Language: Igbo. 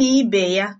na ibe ya